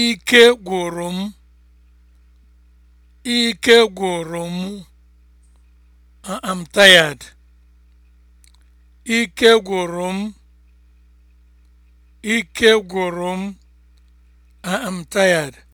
Ike gwụrụ m. Ike gwụrụ m. I'm tired. Ike gwụrụ m. Ike gwụrụ m. I'm tired.